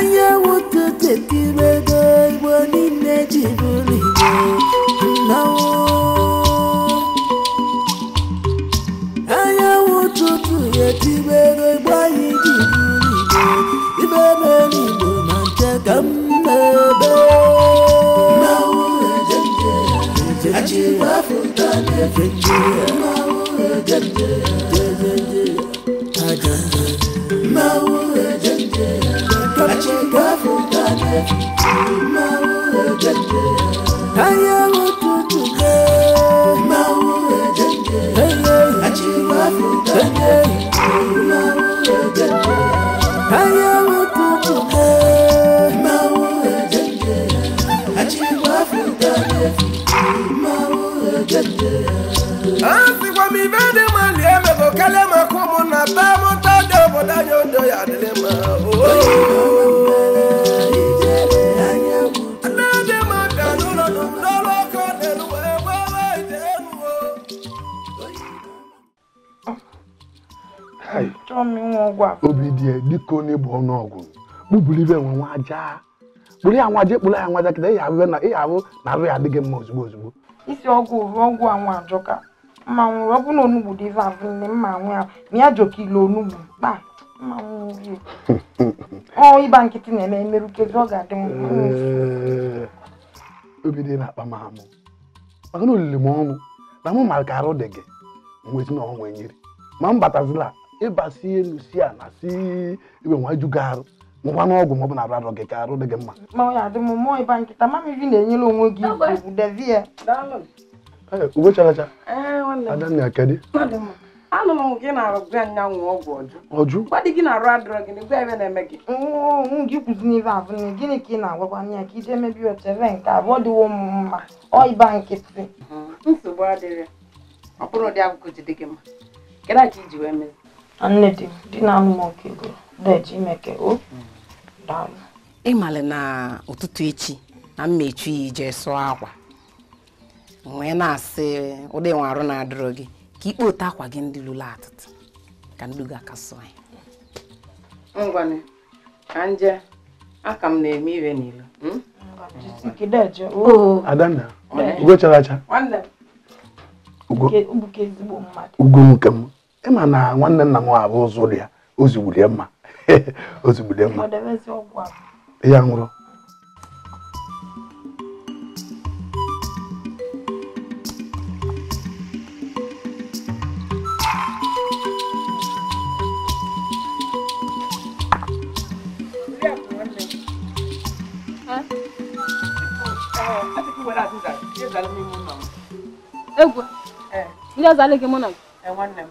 onye nwoke tekiri ego igbo niile ji bụrụ igbo nnọọ onye ụtụtụ ya tibe ego igbo anyị ji bụrụ igbo ibe mere igbo ma nche ka m na-ebe Achịkwa afọ ụta na-efe nje ya Yeah. obi dị dịka onye bụ ọnụọgụ kpụburu ibe nwe nwa aja kpụrụ ya nwa aja kpụrụ ya nwa aja kịta ịha ahụ na ịha ahụ na ahụ ya adịghị mma ozugbo ozugbo isi ọgwụ ruo ọgwụ anwụ ajọka mma nwụrụ ọ bụ na onugbu dị ife ahụ nne mma anwụ ya ma ya jọka ile onugbu kpa mma nwụrụ ọ ịba nkịtị na-eme emerukezi ọ ga-adị obi dị na-akpa m amụ maka na olili m ọnụ na mụ mara ka arụ dị gị nwezi na ọnwa nyere ma m batazila ịba elu si ala si ibe nwa ju gị n'ọgwụ ma na arụ arọ gị ka arụ dị gị mma uwe characha anụrụ m gị na-arụ gwa nyanwụ ọgwụ ọjụ gwadị gị na-arụ adịrọ gị gwa ebe na-eme gị gị kwụzi n'ife abụ na gịnị ka ị na-agwakwa m ya ka ije mebi otere nke abụọ dịwo m mma ọịba nkịtị nsogbu adịrị ọ bụrụ ụdị agwụgụ ji gị mma kedụ iji wee nne di di na anụ m oke ego ji imeke o daalụ ịmalị na ụtụtụ echi na m mechu jee ije sụọ akwa wee na-asị ụdị nwe arụ na-adịrọ gị ka ikpe otu akwa gị ndị lụrụ atụtụ ka nduga aka sụọ ya ngwanị ka nje aka m na-eme ire n'ilo adanna ugo chara acha ugo nke m ma na nwanne nna m abụ ụzụ dị ya ozugbule mma ozugbule mma ya nwụrụ Egwu, eh. ndị ọzọ mụ na gị? Eh, nwanne m.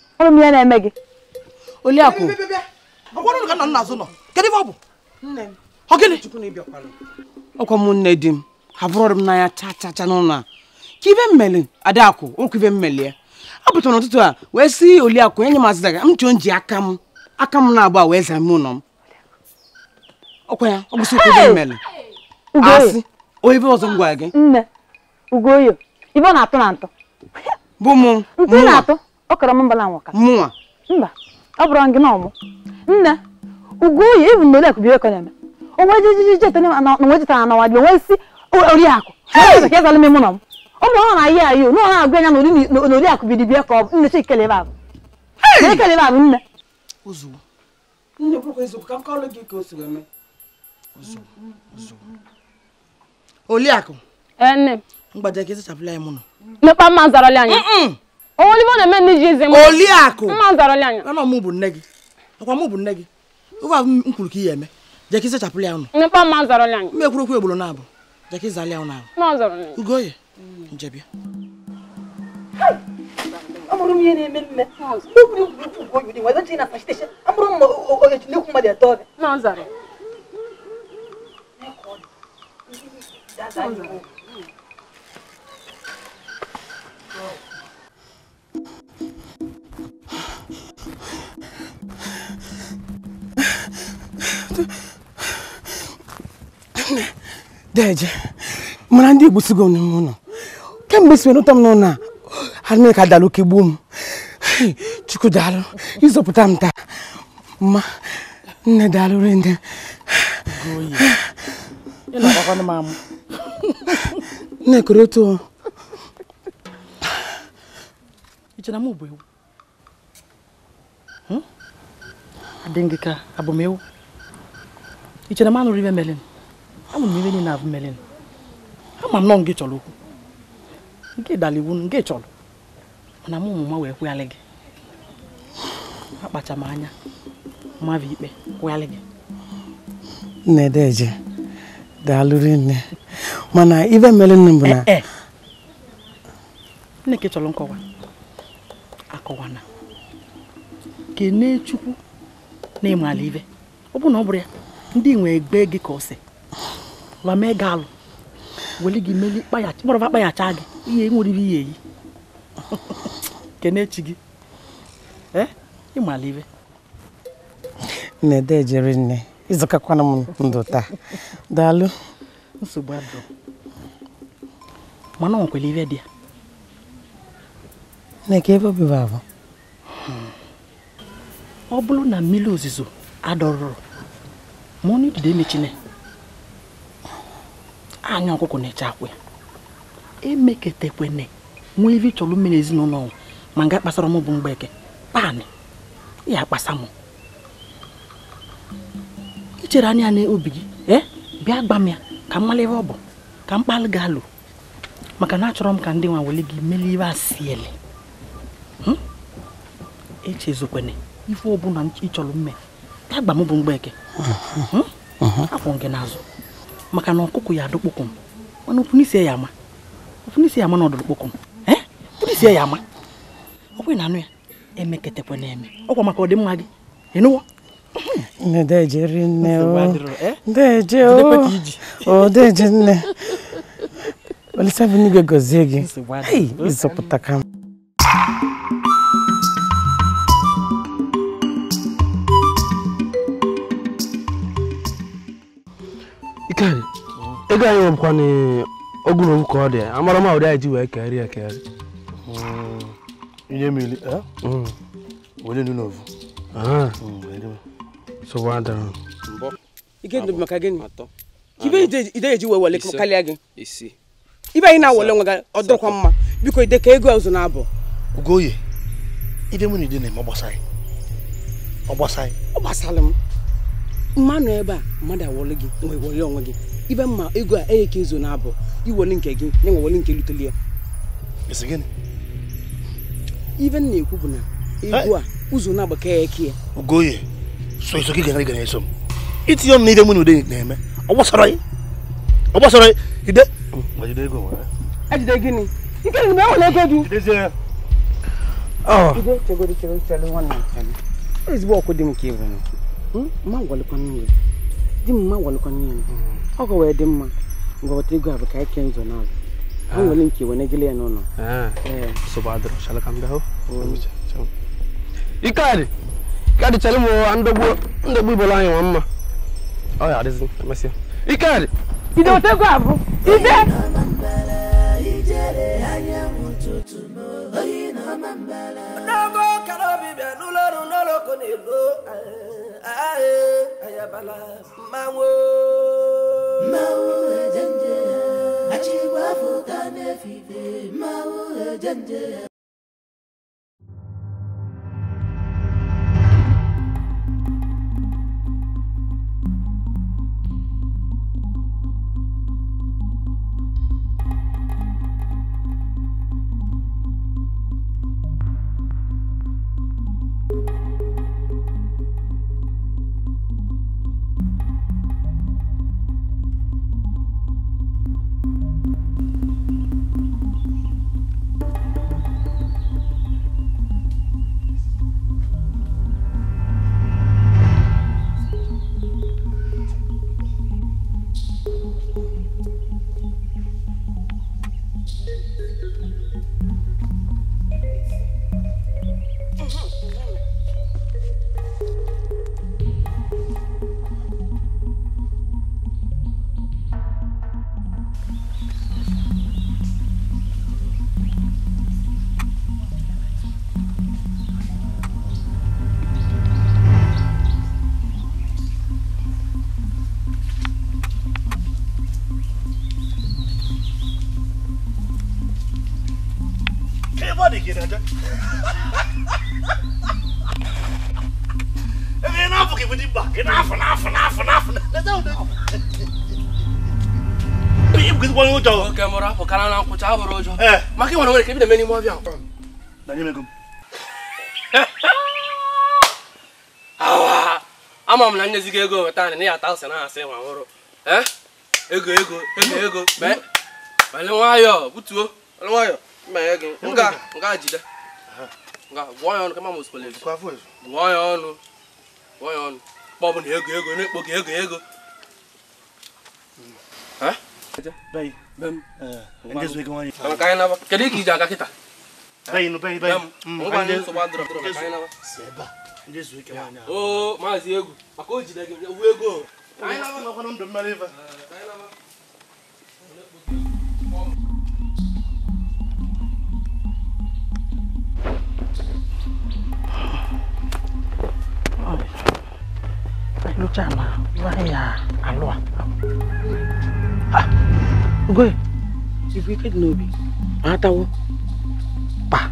ọrụ m ya na-eme gị Oliakụ kedu ọ ọ ọkwa m nne di m abụrọrụ m n'anya cha cha n'ụlọ a ka ibe mmeli Adakụ ụkwụ ibe mmeli ya apụtara n'ụtụtụ a wee sị Oliakụ enye m azịzaga m ji aka m aka m na-agba wee zaa ụlọ m ya ọ ụkwụ ibe mmeli asị onye ọzọ gị ọ kọrọ m mbala mụnwa mba ọ bụrụ gị n'ọmụ nne ugoyi ivu na olekụ biekọ na-eme onwe jijiji na onwe jetara na wadị onwe si oriakụ ka ịzala m ịmụnọ mụ ụmụ ọ na ihe ayo na anya na oriakụ bidi ka ọ bụ nne chi ikele ba ba nne ka ịzachapụla ya mụnọ mekpa mma anya anọ m bu nne gi akwa m bu nne gị ofe ahụ m kwuru ka ihe mma jeki sechapụla ya ụnụ m ekwurokwu egboro na abụ mma zalịa ụnụ ahụ ugoye njebia amụrụ m ihe na-eme mme amụrụ mma ogechi n'ekwu mmadụ atọ ọbịa deje mana ndị Igbo sigo n'ime ụlọ kemgbe si wenụta m n'ụlọ a ha mee ka dara oke gbuo m chukwu daalụ ịzọpụta m taa mma nne daalụ nne nne kere otu hmm? adị gị ka abụ m ewu ị chere m anụrụ ibe melin ama m ibe niile abụ melin ama m nọ nke chọrọ okwu nke dara iwu nke chọrọ mana m ụmụ ma wee kwụghalị gị akpacha m anya mmadụ ikpe kwụghalị gị nne deje daalụrị nne mana ibe melin bụ na nne ka chọrọ nkọwa akọwana kene chukwu na ala ibe ọ bụ na ọ bụrụ ya ndị nwee egbe gị ka ọsị wa mee gị alụ weli gị meli kpọrọfa kpaghacha gị ihe nwere ihe iyi eyi kenechi gị eh? ịmalibe nne dejere nne ịzụkakwana m ndụ taa daalụ nsogbu adụ mana ọ nwekwara ibe dị ya Nneka ka ebe obibi abụ ọ bụrụ na mmiri ozuzo adọrọrọ ma ọnụ idide emechine anya ọkụkọ na-eche akwa ya emeketekwene nwee ife chọrọ mmiri ezinụlọ ọnwụ ma nga kpasara m bụ mgbeke paanị ya kpasa m ichere anya na obi gị e bịa gba m ya ka m mara ebe ọ bụ ka m kpalụ gị alụ maka na achọrọ m ka ndị nwa wele gị melie ibe asiele hmm? echezokwene ife ọbụla ịchọrọ mme agba m bụ mgbeke akwụ hmm? gị n'azụ maka na ọkụkụ ya adụkpokọ m mana ofunisi ya ama ofunisi ya ama na ọdụrụkpokọ m ofunisi eh? ya ama ọkwe na anụ ya emeketekwa na-eme ọkwa maka ọdịmma gị ịnụwo ndeje nne ndeje o eh? ndeje nne olisabu n'igwe gozie gị ịzọpụta ka m ego anyị nwekwana ogu na ogu ka ọ dị amara ma ụdị anyị ji wee keri ya keri hmm. ihe mmiri eh? hmm. were nu n'ovu ah. hmm, ibe anyị na nwe gị mma biko ide ka ego ọzọ na-abụ ugoye ide mụ na ide na-eme ọ gbasara m mmanụ ebe a mmadụ gị nwe wele onwe gị ibe mma ego a enye ka izo na-abụ iweli nke gị na nweweli nke luteli ya ibe m na-ekwu bụ na ego a eh? ụzọ na-agba ke ya eke ya ogoye so gị gara gara eso m itinye m n'ihe mụ na ude na-eme ọ gbasara gị ọ gbasara gị ide ejide e gịnị nke e na ego du ah. ah. ezigbo ọkụ m ka hmm? ma di m ma ọ wee dị mma ngwọta igwe bụ ka anyị kee nzọ n'azụ nwere nke wenegịla ya n'ụlọ ikadị ikadị chere m ndogbu ibola anyị nwa mma ọ ya adịzi emesịa ikadị bido otegwu abụ ide n'ogo kara obi موعدا أجيب وافقنا في ما وجدنا ebe n'afọ ka ebute mba gị n'afọ n'afọ n'afọ n'afọ leta ụdị ihe bụkwa onye ụjọ na nkwụcha ha bụrụ ụjọ maka ịnwere nwere ka ebido eme n'ime ọbịa ama m na nyezi ego weta na ya ata ụsị na asị ma nwụrụ ego ego ego ego Nga njide, Nga gụọ ya kama Gụọ ego ego na-ekpo gị ego ego. Kedu ka iji aga kịta? Mm, Oo ego. Luchama, Zaya, Alua. Ah, Ugoe, ibu ike dị n'obi, ma atawo. Pa,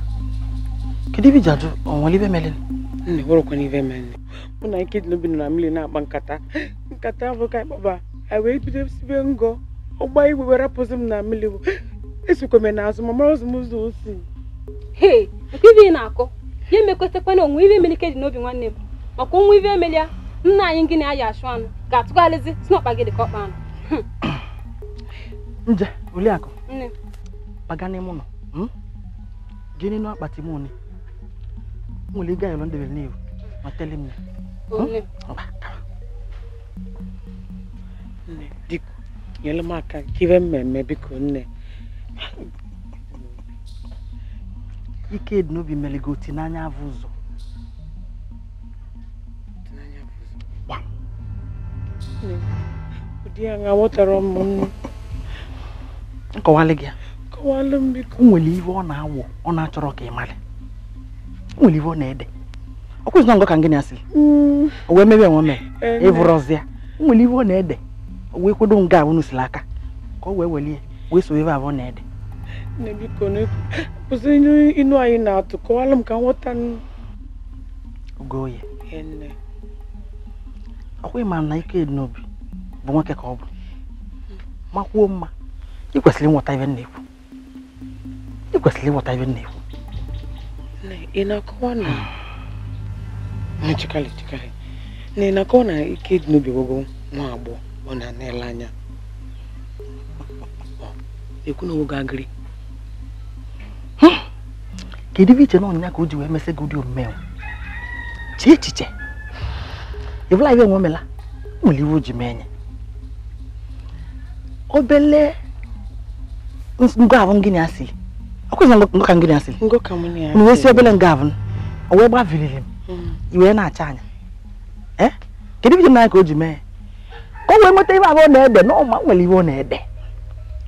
kedu ibe jadu ajụ ọnwale ibe mere? Nne, wụrụkwa n'ibe mere nne. Mụ na ike dị n'obi nọ na mmiri na-akpa nkata. Nkata abụ ka ịkpọba, anyị wee bido sibe ngọ. Ọgba igwe were rapụzi m na mmiri bụ. Esokwa m n'azụ ma mara ụzọ m ụzọ o si. Hei, nke ibe ị na-akọ, ya emekwesịkwa na onwe ibe mere ike dị n'obi nwanne m. Maka onwe ibe emelia, nna anyị nke na-ayị achụ anụ ga-atụgharịzi si gị dị ka ọkpa anụ nje Oriakụ baga n'ime ụlọ jee n'elu akpati m one nwere ịga yọrọ ndebere n'ihu ma tele m ya hmm? biko nyere m aka kibe mmemme biko nne ike dị n'obi mere gị oti n'anya avụ ụzọ di nkọwalị gị nwere ọ na-awụ ọ na-achọrọ ka ị malị nwere iwe ọ na-ede ọ kwụzina ngọ ka na asị o wee mebe enwe mee ịvụrọzịa nwere iwe ọ na-ede o wee nga ahụ n'usiri aka ka ọ wee welie wee so ebe abụọ na-ede na ike dị n'obi bụ nwoke ka ọ bụ makwuo mma ị kwesịrị ịghọta ibe na-ekwu ị kwesịrị ịghọta ibe na-ekwu ị na-akọwa na chekali chekali na ị na-akọwa na ike dị n'obi gwogo nwa agbọghọ ọ na-ana ele anya ekwu na oge agịrị kedu ibe iche na ọnya ka o ji wee mesị gị ụdị omume chee echiche ịbụla ibe enwe mela nwere iwe o ji mee nye obele ngwavụ ngịnị asị ọkwụzị ngọ ka ngịnị asị m wee si obele ngavụ o wee gbaviriri m mm. iwee na-acha anya ee kedu ibi nanya ka o ji mee ka o wee nweta ibe abụọ na-ede na ọma nwere iwe ọ na-ede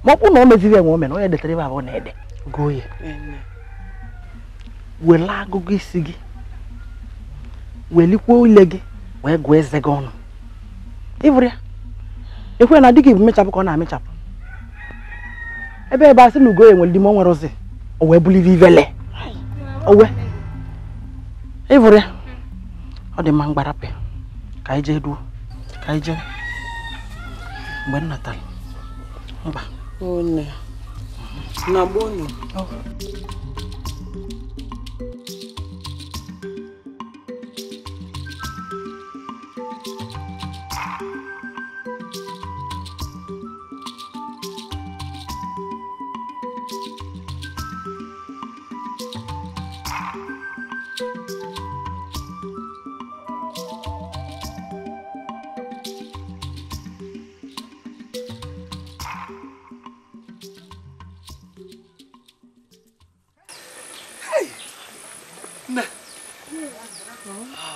ma ọ na o meziri enwe ome na onye detara ibe abụọ na-ede gụọ ya were agụgụ isi gị welikwuo ile gị wee gụọ eze gị ọnụ ịbụrụ ekwe na dịka ibu mechapụ ka ọ na-amechapụ ebe ebe asị na ugo ya nwere ime o nwere ozi o wee buliri ivele owe ịvụrụ ya ọ dị mma mgbarapị ka anyị jee duo ka anyị jee mgbe m mba na gboo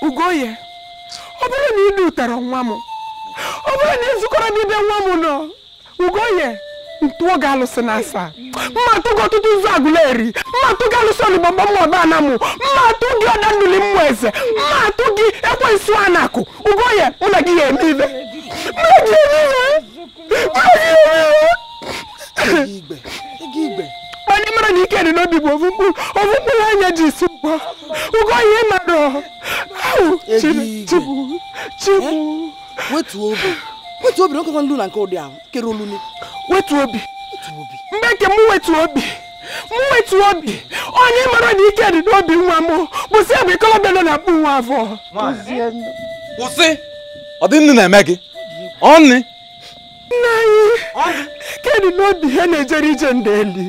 Ugoye ọ bụrụ na ịdị ụtara nwa m ọ bụrụ na ịzụkọrọ n'ebe nwa m nọ Ugoye ntụọ ga-alụsị na asaa mma atụgo ọtụtụ ụzọ agụleri mma atụ gị alụsị olugbamba mmaọba ana mụ mma atụ gị ọdanduli mmụọ eze mma gị ekwe ekwensu anakụ Ugoye ụlọ gị ya eme ibe mana ị mara na ike dị n'obi bụ ovu mkpụrụ anya ji isi gwọ Ugoye ịmarọ Eh? wetu obi Wetu nkekwa nlu na nke ụdị ahụ kere olulu wetu obi mgbe nke m wetu obi m wetu obi onye mara na ike dị n'obi nwa m kwụsị ya bụ ikolobịa nọ na-akpụ nwa afọ kwụsị ọ dị nnu na-eme gị ọnị nna anyị kedụ na obi ha na-ejere ije ndeli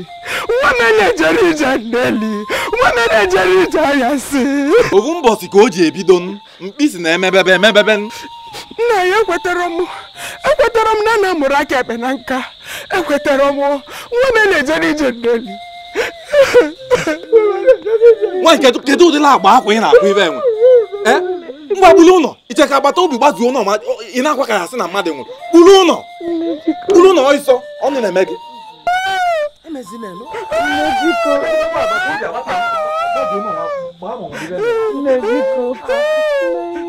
nwa m na-ejere ije ndeli nwa m na-ejere ije ahịa si ofu mbọsi ka o ji ebido mkpịsị na-emebebe emebebe nna ya ekwetara m ekwetara m na na mụrụ aka ekpe na nka ekwetara m nwa m na-ejere ije ndeli nwaanyị kedụ ụdịla agba akwa ị na-akpụ ibe enwe eh? mgbagbuli ụlọ ka agbata obi gbazuo ụlọ ma ị na-akwa ka ya sị na mmadụ nwụrụ kpuru ụlọ kpuru ụlọ ọsọ ọnụ na-eme gị Nne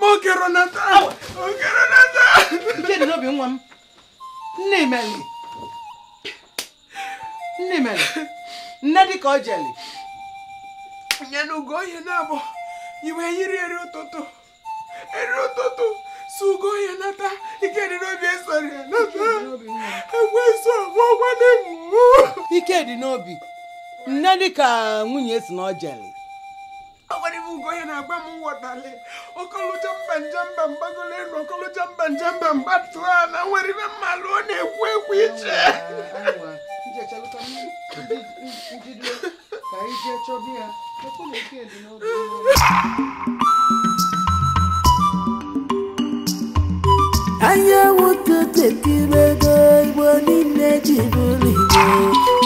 mokeronata nata, nke dị n'obi nwa m nne meli nne meli nne dịka ọ jeli nye n'ugo ihe na-abụ iwe yiri eri ụtụtụ eri ụtụtụ si ugo ihe nata ike dị n'obi esoro ya nata so, ọgwọgwa na-ewu ike dị n'obi nne dịka nwunye si na ọ jeli agbanibu ugoya na-agba m nwọtali okolocha mba njemba mbagolo elu okolocha mba njemba mba a na nwere ibe mmalụ ọ na-ekwu ekwu iche anya nwoke tekirego igbo niile ji bụrụ igbo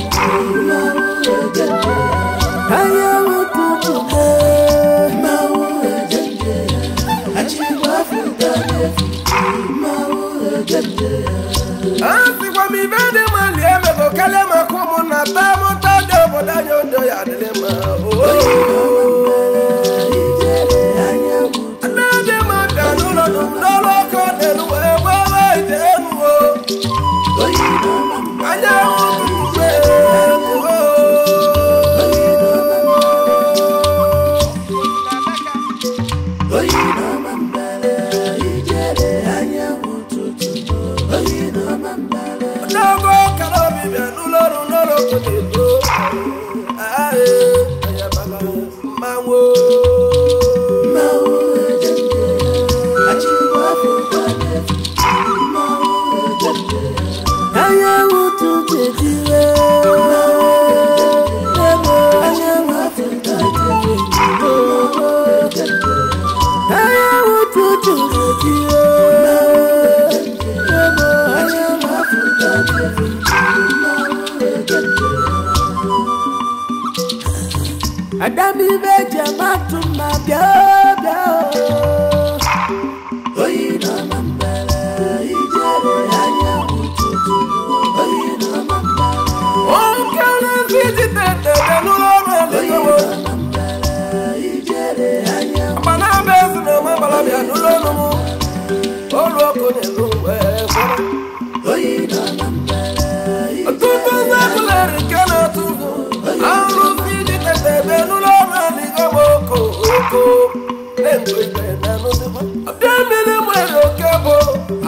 ibe ji ama atụ my bịa mmiri nwere oke bụ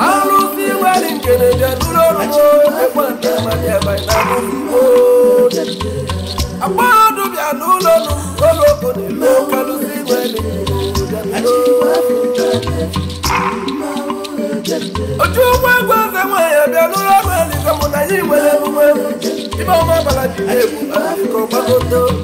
arụsị nwere nkeneje nụrụ ọrụrụ bịa nwere otu ụgbọ egwu eze nwanyị abịa n'ụlọ ọrụ elikọmụ na nwere emume ibe ọma ji egwu